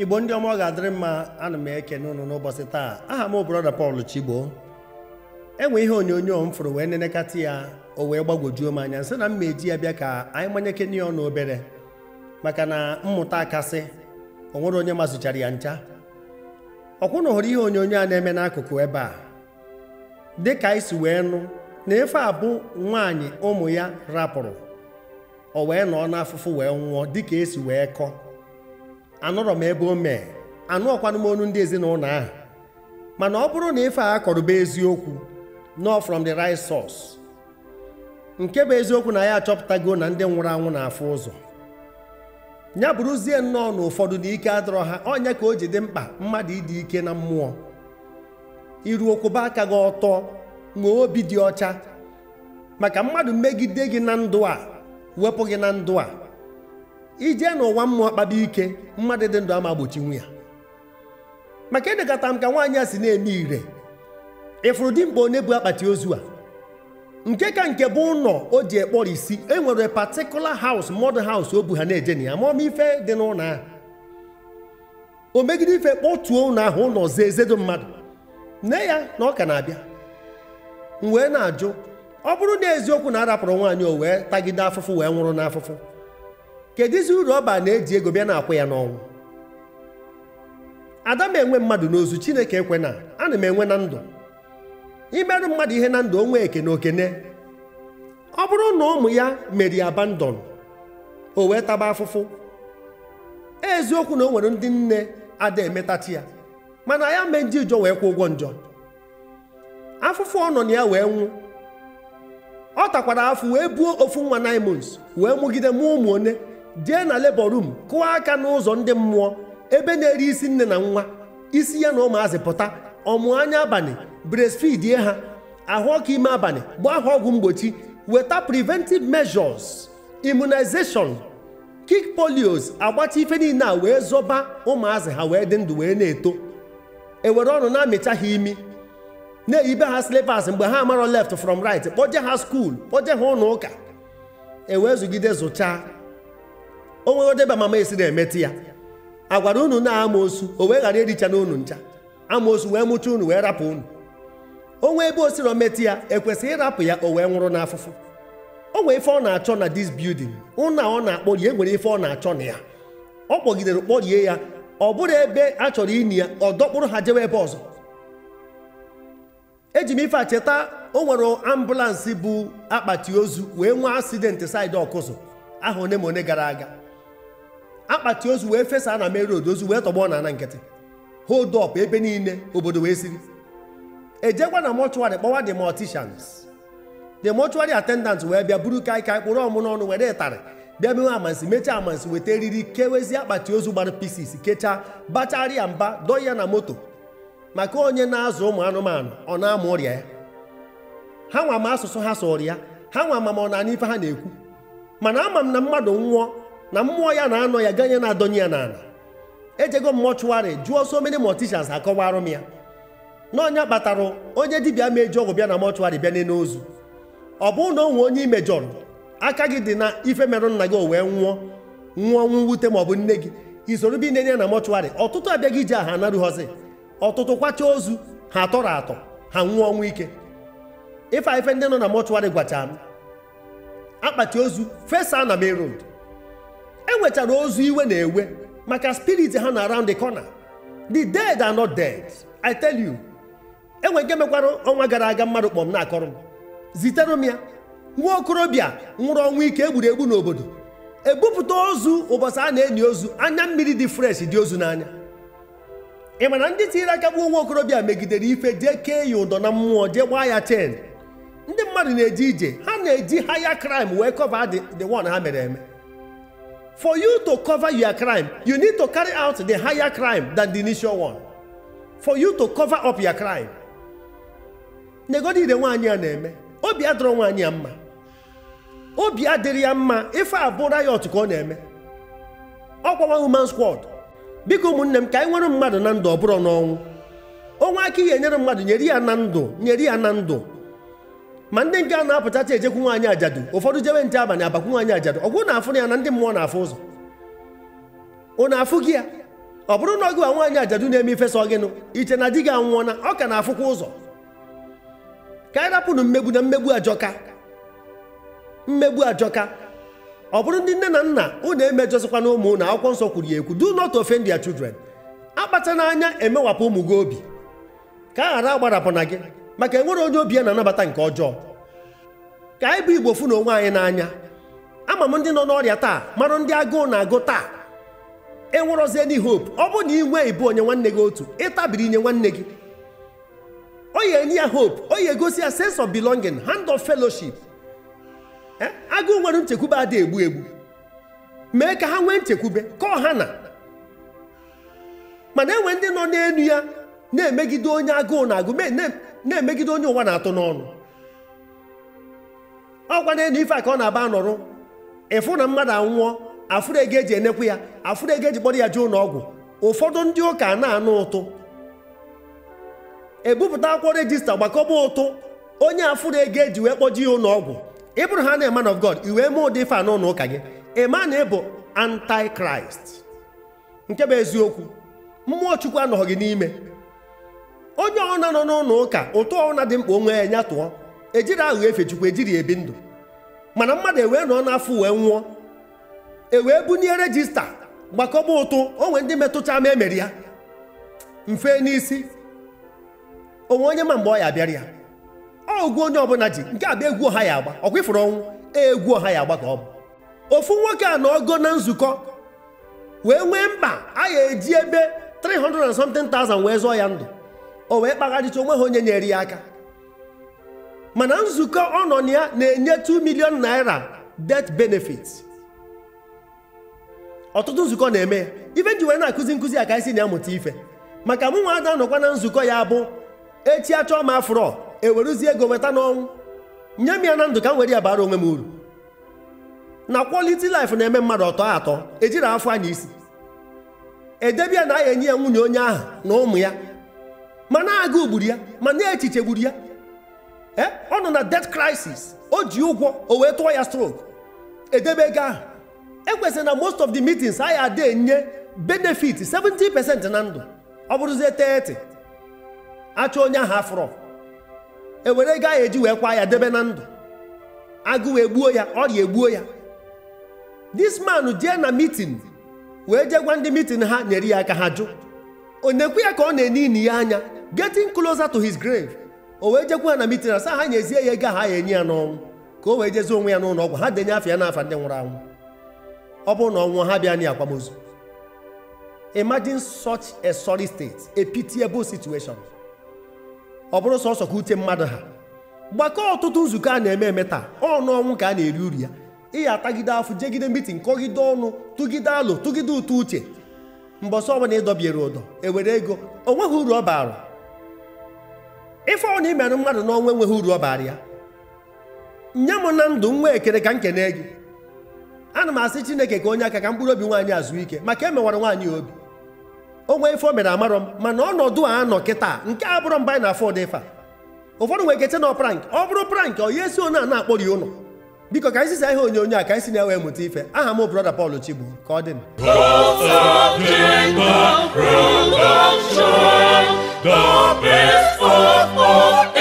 igbo ndị ọma ọ ga-adịrị mma ana m ekene ụnụ n'ụbọchị taa aha m brọda Paul Chigbo enwe ihe onyonyo m fụrụ wee nenekata ya o wee gbagwojuo m anya nsị na m ma eji ya bịa ka anyị manyekene ya ọnụ obere maka na mmụta akasị o nwere onye mazụchara ya ncha ọkwụ na hụrụ ihe onyonyo a na-eme n'akụkụ ebe a dị ka anyị si wee nụ na efe abụ nwaanyị ụmụ ya rapụrụ o wee nọọ n'afụfụ wee nwụọ dịka esi wee kọọ anụrọ m ebe o mee anụ m onu ndị ezinụlọ ahụ mana ọ bụrụ na ife a bụ eziokwu nọ from the right source nke bụ eziokwu na ya achọpụtago na ndị nwụrụ anwụ na-afụ ụzọ ya bụrụzie nnọọ na ụfọdụ na ike adọrọ ha onye ka o ji dị mkpa mmadụ ịdị ike na mmụọ iru okwuba aka gị ọtọ nwee obi dị ọcha maka mmadụ megide gị na ndụ a wepụ gị na ndụ a Ije n'ụwa mmụọ kpaba ike mmadụ dị ndụ ama gbochi ya maka edekọta m ka nwaanyị a si na-eme ire ịfụrụ dimkpa onye bụ akpati ozu a nke ka nke bụ ụlọ o ji ekpọrọ isi e nwere patikula haus mọdụ haus o bu ha na-eje na ya ma ọma ife dị n'ụlọ ahụ o megide ife kpọtuo ụlọ ahụ ụlọ ọzọ mmadụ nne ya na ọ ka na-abịa m wee na-ajụ ọ bụrụ na eziokwu na arapụrụ nwaanyị o wee tagide afụfụ wee nwụrụ n'afụfụ kedụzi uru ọba na-eji ego bịa na-akwụ ya n'ọnwụ ada m enwe mmadụ n'ozu chineke ekwe na ana m enwe na ndụ imerụ mmadụ ihe na ndụ onwe eke na okene ọ bụrụ na ụmụ ya meri abandon o wee taba afụfụ eziokwu na o nwere ndị nne ada emetachi ya mana ya mee ndị ụjọ wee kwụ ụgwọ njọ afụfụ ọ nọ na ya wee nwụ ọ takwara afụ wee buo ofu nwa naimons wee mụgide mụọ ụmụ one jee na labour room kụọ aka n'ụzọ ndị mmụọ ebe na-eri isi nne na nwa isi ya na ụmụazị pụta ọmụ anya abalị breastfeed ha ahụ ọkụ ime abalị gbaa ha ọgwụ mgbochi weta preventive measures immunization kick polios agbacha ife niile a wee zọba ụmụazị ha wee dị ndụ wee na-eto ewere ọnụ na-amịcha ha imi na-eyibe ha slippers mgbe ha amarọ left from right kpọje ha skuul kpọje ha ụlọ ụka e zụgide zụchaa o nweghọdebe mama esiri emeti ya a gwara unu na osu o wee ghara ericha na unu ncha amaosu wee mụcha unu wee rapụ unu onwe ebe o siro metụ ya ekwesịghị ịrapụ ya o wee nwụrụ n'afụfụ o nwee ife ọ na-achọ na dis building ụna ọ na-akpọrie nwere ife ọ na-achọ na ya ọ kpọgidere kpọrie ya ọ bụrụ ebe a chọrọ ini ya ọ dọkpụrụ ha jewe ebe ọzọ eji m ife a cheta o nwere ambụlansị bụ akpati ozu wee nwee asidenti saịdị ọkụzụ aha one ma one gara aga akpati ozu wee fesa na meru ozu wee tọgbọ na ana nkịtị hold up ebe niile obodo wee siri ejekwa na mọchụarị kpọwa the morticians the mortuary attendant wee bịa buru kaikai kpụrụ ọmụ n'ọnụ were ịtarị bịa mewe amansi mechaa amansi weta eriri kewezi akpati ozu gbara pisis kechaa bacharịa mba dọọ ya na moto maka onye na-azụ ụmụ anụmanụ ọ na-ama ọrịa ya ha nwa ma asụsụ ha sọrọ ya ha nwa ma ọ na-ana ife ha na-ekwu mana ama m na mmadụ nwụọ na mmụọ ya na-anọ ya ganye na-adọnye ya n'ala ejego mọchụwarị jụọ so many morticians akọwarụ m ya n'ọnya kpatara onye dibịa mejọ ọgwụ bịa na mọchụwarị bịa n'elu ozu ọ bụrụ na onwe onye imejọrọ aka gị dị na ife merụ nna gị o wee nwụọ nwụọ nwụ maọbụ nne gị isoro bi nenye na mọchụwarị ọtụtụ abịaghị iji aha anarughọzi ọtụtụ kwacha ozu ha atọrọ atọ ha nwụọ ọnwụ ike ife ife ndị nọ na mọchụwarị gwacha m akpati ozu fesa na main enwetara ozu iwe na-ewe maka spirit ha na around the corner the dead are not dead i tell you enwe nke mekwara ọnwa gara aga mmadụ kpọm na-akọrọ m zitere m ya nwa okorobịa nwụrụ ọnwụ ike egburu egbu n'obodo ebupụta ozu ụbọchị a na-enyi ozu anya mmiri dị fresh dị ozu n'anya ị mana ndị tinyere aka gbuo nwa okorobịa megidere ife jee kee ya ụdọ na mmụọ jee gbaa ya chen ndị mmadụ na-eje ije ha na-eji haya crime wee kọva the one ha mere eme For you to cover your crime, you need to carry out the higher crime than the initial one. For you to cover up your crime. Negodi ide nwaanyị a na-eme, obi adọrọ nwaanyị a mma. Obi adịrị ya mma ife abụ riot ka ọ na-eme. Ọkwawa human squad. Biko ụmụnne m ka anyị nwere mmadụ na ndụ ọ bụrụ n'ọnwụ. Onwe aka ihe nyere mmadụ nyere ya na ndụ nyere ya na ndụ ma ndị nke a na-apụtacha ejekwu nwaanyị ajadu ụfọdụ jewe nche abalị abakwu nwaanyị ajadu ọgwụ na-afụ ya na ndị mmụọ na-afụ ụzọ Ọ na-afụ gị ya ọ bụrụ na ọgụ a nwaanyị ajadu na-eme ifesa ọgịnụ iche na di gị anwụọna ọ ka na-afụkwa ụzọ ka anyị rapụrụ mmegbu na mmegbu ajọka mmegbu ajọka ọ bụrụ ndị nne na nna ụnụ emejọzikwa na ụmụ unu akwụkwọ nsọ kwuru ya ekwu do not ofe their children akpata n'anya emewapụ ụmụ gị obi ka a ghara agbarapụ na gị maka enwere onye obi ya na-anabata nke ọjọọ ka anyị bụ igbo fụ na onwe anyị n'anya ama m ndị nọ n'ọrịa taa marụ ndị agụụ na-agụ taa enwerozie ndị hope ọ bụ na inwe ibu onye nwanne gị otu ịtabiri inye nwanne gị o yi enye ya hope onye gosi egosi ya sense of belonging hand of fellowship e, agụụ nwere nchekwube ada egbu egbu mee ka ha nwee nchekwube kọọ ha na mana enwe ndị nọ n'elu ya na-emegide onye agụụ na-agụ na-emegide onye ụwa na-atụ n'ọnụ ọ na elu ife a ka ọ na-aba nọrụ ịfụ na mmadụ anwụọ afụrụ ego eji enekwu ya afụrụ ego eji kpọrọ ya je ụlọ ọgwụ ụfọdụ ndị ụka na-anụ ụtụ ebupụta akwụkwọ rejista gbakọba ụtụ onye afụrụ ego eji wee kpọji ya ụlọọgwụ ọgwụ ị bụrụ ha na man of God i wee mee ụdị ife a n'ụlọ ụka gị ịma na ịbụ antikraịst nke bụ eziokwu mmụọ chukwu anọghị gị n'ime onye ọna nọ n'ụlọ ụka ụtụ ọna dị mkpa onwe ya nya tụọ ejiri aghụghọ efe chukwu ejiri ebi ndụ mana mmadụ ewee nọ n'afọ wee nwụọ ewee bunye rejista gbakọba ụtụ onwe ndị metụta ma emeri ya mfe n'isi onwe onye ma mgbe ọ ya bịara ya ọgwụ onye ọbụla ji nke abịa egwu ọha ya agba ọkwa ifuru ọnwụ egwu ọha ya agba ka ọ bụ ofu nwoke a na ọgọ na nzukọ wee nwee mkpa a ya eji ebe 300 and something thousand wee zụọ ya ndụ o wee kpagharịcha onwe ha onye nyere ya aka mana nzukọ ọ nọ na ya na-enye 2 milion naira death benefit ọtụtụ nzukọ na-eme ya ife ji wee na-akụzi nkụzi a ka isi na-amụta ife maka mụ nwa ada nọkwa na nzukọ ya bụ echi achọọ m afrọ ewerụzie ego weta n'ọnwụ nye m ya na ndụ ka m were ya bara onwe m uru na quality life na-eme mmadụ ọtọ atọ ejiri afọ anya isi edebe ya na enye ya nwunye onye ahụ na ụmụ ya na gburu ya ma na echiche gburu ya e, ọ nọ na death crisis o ji ụgwọ o wee tụọ ya stroke edebe ego ahụ ekwesịrị na most of the meetings anyị adị enye benefit 70% na ndụ ọ bụrụzie 30 achọ onye ahụ afro ewere ego ahụ eji wee kwa ya debe na ndụ wee gbuo ya ọrịa egbuo ya this man jee na meeting wee jee gwa ndị meeting ha nyere ya aka ha jụ onekwe ya ka ọ na-ene ini ya anya getting closer to his grave o wee jekwa na mitin asa ha nyezie ya ego ha ya enye ya n'ọnwụ ka o wee jezie onwe ya n'ụlọ ọgwụ ha denye afọ ya n'afa ndị nwụrụ anwụ ọ bụrụ na ọnwụ ha bịa na akwamozu imagine such a sorry state a pitiable situation ọ bụrụ sọsọ ka uche mmadụ ha gbakọọ ọtụtụ nzukọ a na-eme eme taa ọnụ ọnwụ ka a na-eri uri ya ịya atagide afọ jegide mitin kọgide ọnụ tụgide alụ tụgide ụtọ uche mbọsọ ọbụla ịdọbiere ụdọ ewere ego o nweghị uru ọ baara ife ọ na imere mmadụ n'ọnwa enweghị uru ọ ya nye m na ndụ nwa ekere ka m kene gị ana m asị chineke ka onye aka ka mkpụrụ obi nwaanyị azụ ike maka e mewara nwaanyị obi onwe ife o mere amarọ m mana ọnọdụ a nọ kịta nke a bụrụ mba anyị na afọdụ ife a ụfọdụ nwere ike na prank ọ bụrụ prank ọ ya esi onye a na-akpọrọ ụlọ biko ka anyị sisa ihe onye a ka anyị si na-enwe mụta ife aha m brọda Paul chigbu ka ọ dị the best of all.